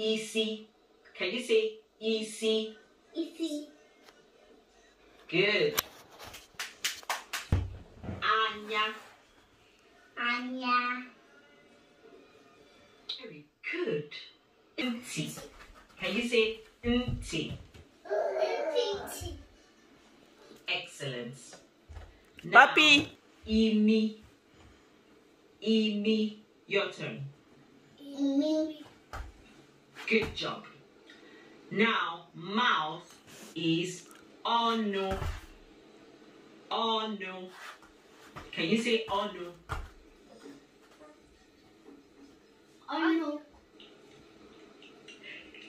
EC. Can you say EC? EC. Good. Anya. Anya. Very good. Nti. Can you say nti? Nti. Excellent. Papi. Imi. Imi. Your turn. Imi. Good job. Now, mouth is onu. Onu. Can you say onu? Onu.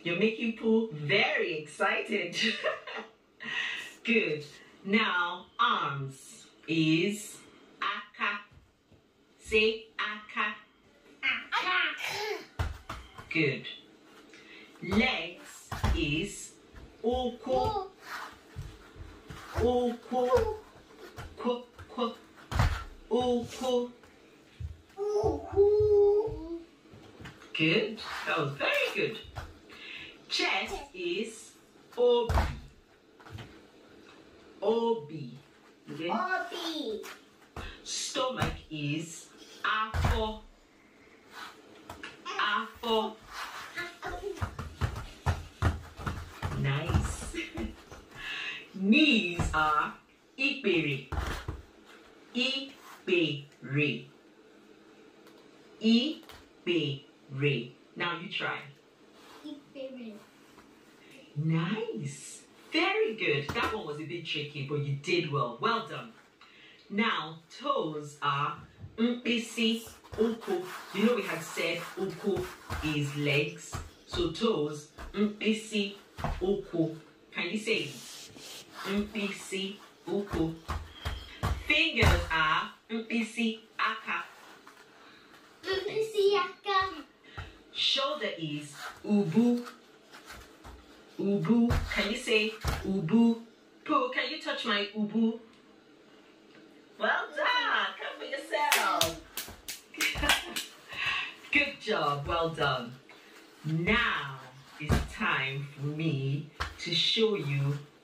You're making Pooh very excited. Good. Now, arms is aka. Say aka. Aka. Good legs is oko. Oko. Oko. Oko. Good. That was very good. Chest is obi. Obi. Okay. Obi. Stomach is afo. Afo. knees are ipiri, ipiri, ipiri. Now you try. Nice. Very good. That one was a bit tricky, but you did well. Well done. Now, toes are mpisi, uku. You know we had said uku is legs. So toes, mpisi, uku. Can you say it? mpc uku. Fingers are mpc aka. Mpc aka. Shoulder is ubu. Ubu. Can you say ubu? Pooh, can you touch my ubu? Well done. Come for yourself. Good job. Well done. Now it's time for me to show you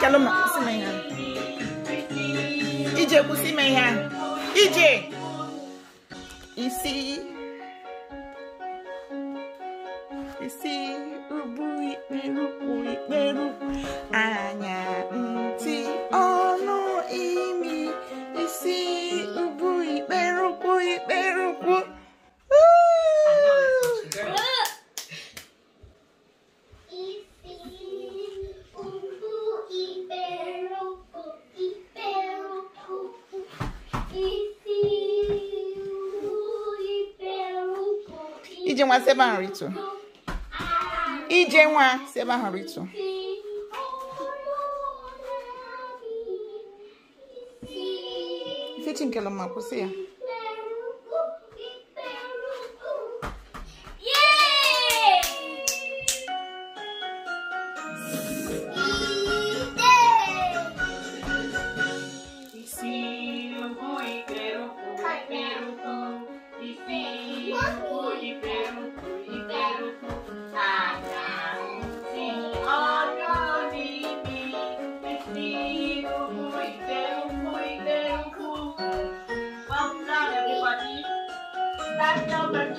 kalma si my hand. EJ will see isi hand. EJ. You see. ebe ahụ rịtụ ije nwa si ebe ahụ rịtụ ifechi nke ma kwụsị ya that number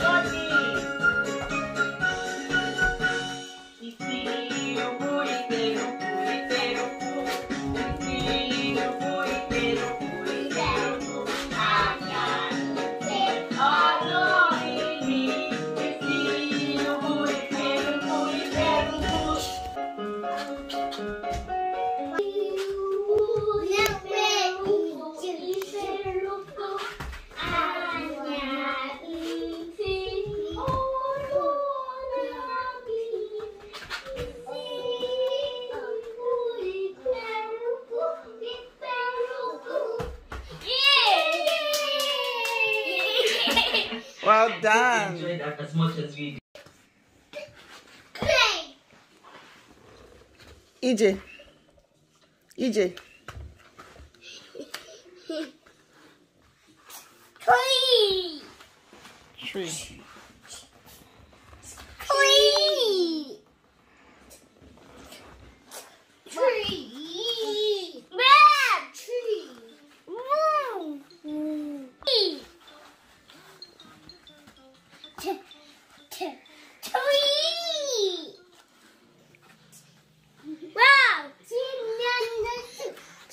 Well I done. that as much as we EJ. EJ. Tree. Tree.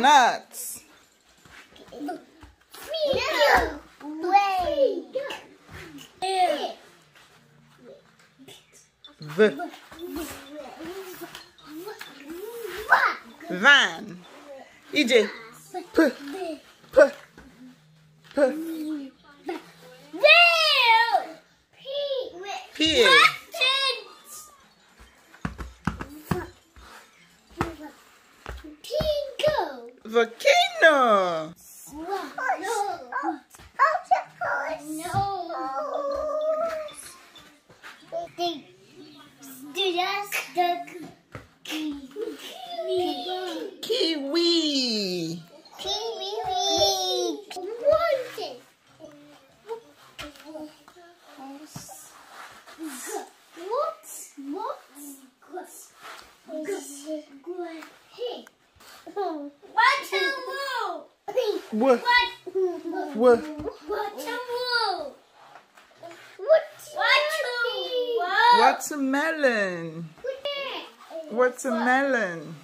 nuts. No way. The van. EJ. just the kiwi. Kiwi. Kiwi. What? What? What? What? What? It's a melon.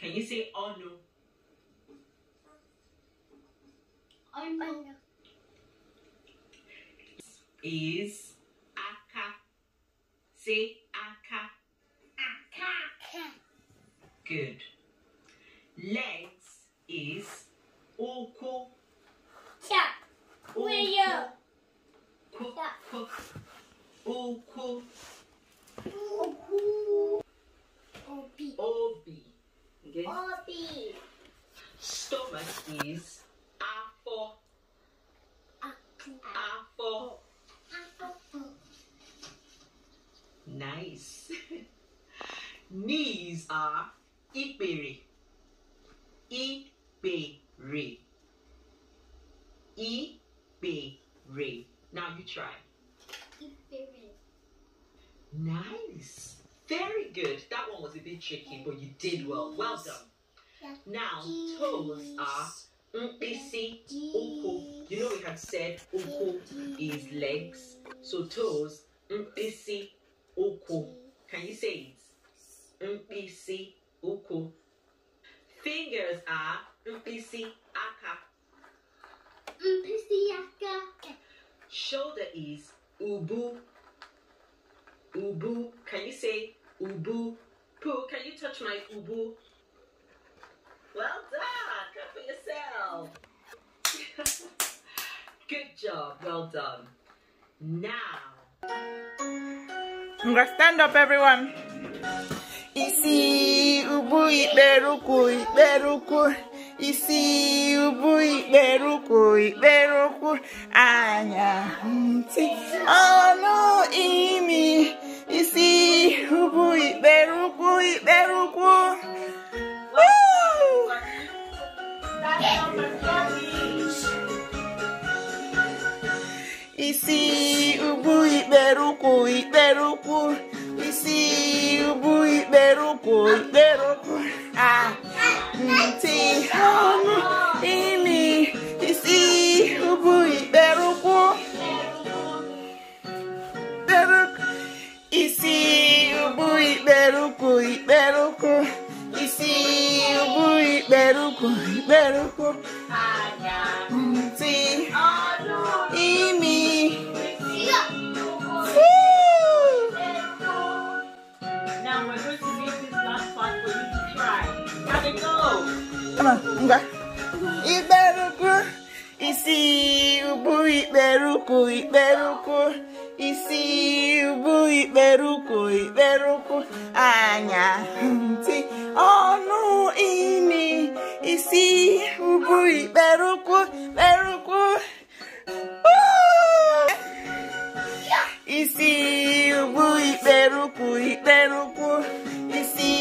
Can you say oh no? Oh no. Is aka. Say aka. Aka. Good. Legs is oko. Chap. Wheel. Oko. Oko. Obi. Obi. Okay? Obi. Stomach is a for a for Nice. Knees are iperi. Iperi. Iperi. Now you try. Iperi. Nice. Very good. That one was a bit tricky, but you did well. Well done. Now, toes are mpisi, uku. You know we had said uku is legs. So toes, mpisi, stand up everyone isi ubu ikperuku ikperuku isi ubu ikperuku ikperuku anya ntị ọnụ imi isi ubu ikperuku ikperuku isi ubu ikperuku ikperuku isi bụ ikpere ụkwụ ikpere ụkwụ a ah, ntị ọnụ imi Beruku, beruku, anya ntị ọnụ ini isi ugwu beruku. ikperuku isi ubui beruku, beruku. isi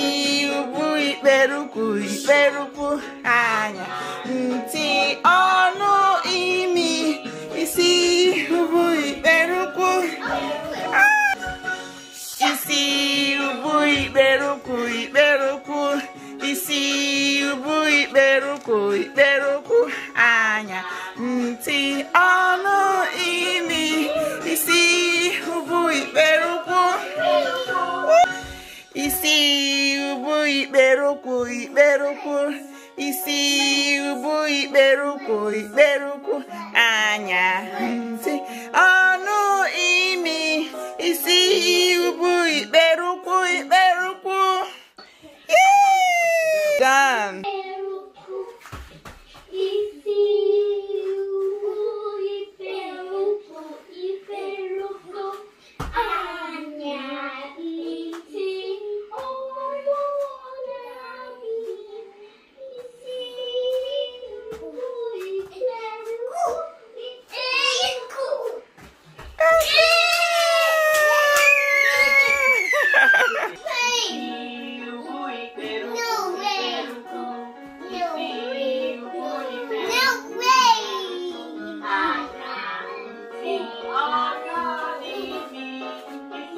ugwu beruku, beruku. isi bụ ikperukwụ ikperukwụ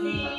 me.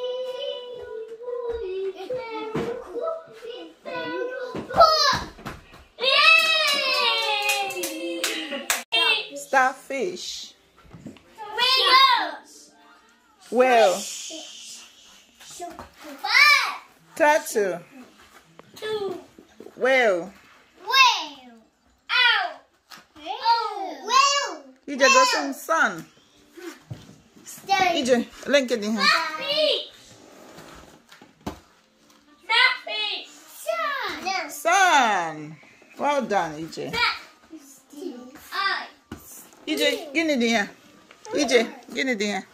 fish? Whale. Turtle. Two. Whale. Ije got some sun. Ije, link it in here. Sun. Sun. Well done, Ije. EJ, gini dia. EJ, gini dia.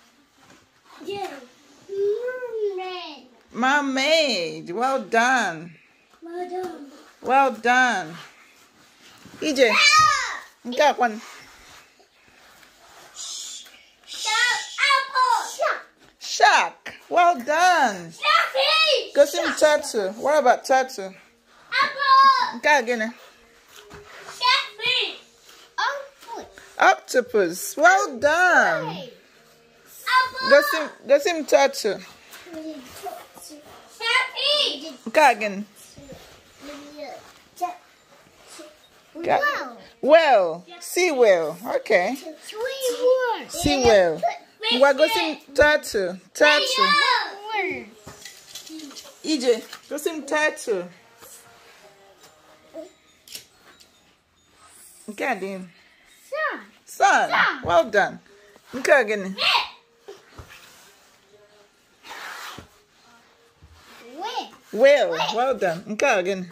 Mermaid. Mermaid. Well done. Well done. Well done. EJ. Got one. Shark. Well done. Sharky. Go see tattoo. What about tattoo? Apple. Got again. Octopus. Well done. That's him, that's him turtle. Go again. Well, Wow. Well, sea well. Okay. Sea whale. Wagosim turtle. Turtle. EJ, gosim turtle. Get in. Sure. Son. Well done. I'm ganun. Will. Well done. Ikaw, ganun.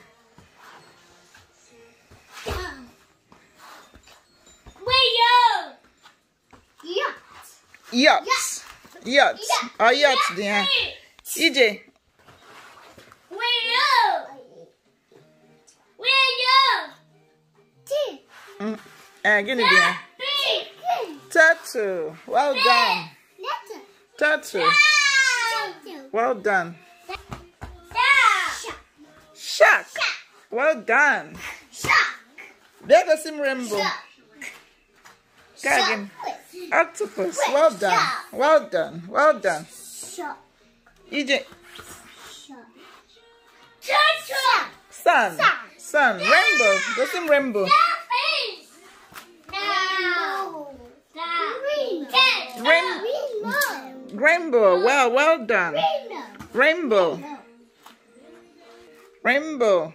Yachts. Yachts. Oh, yachts din ha. EJ. Will. Will. T. Mm. Eh, gini din ha. Turtle. Well done. Turtle. Well done. Shark. Well done. Shark. Let us in rainbow. Shark. Octopus. Well done. Well done. Well done. Shark. EJ. Shark. Sun. Sun. Rainbow. Go in rainbow. rainbow. Well, well done. Rainbow. Rainbow. rainbow.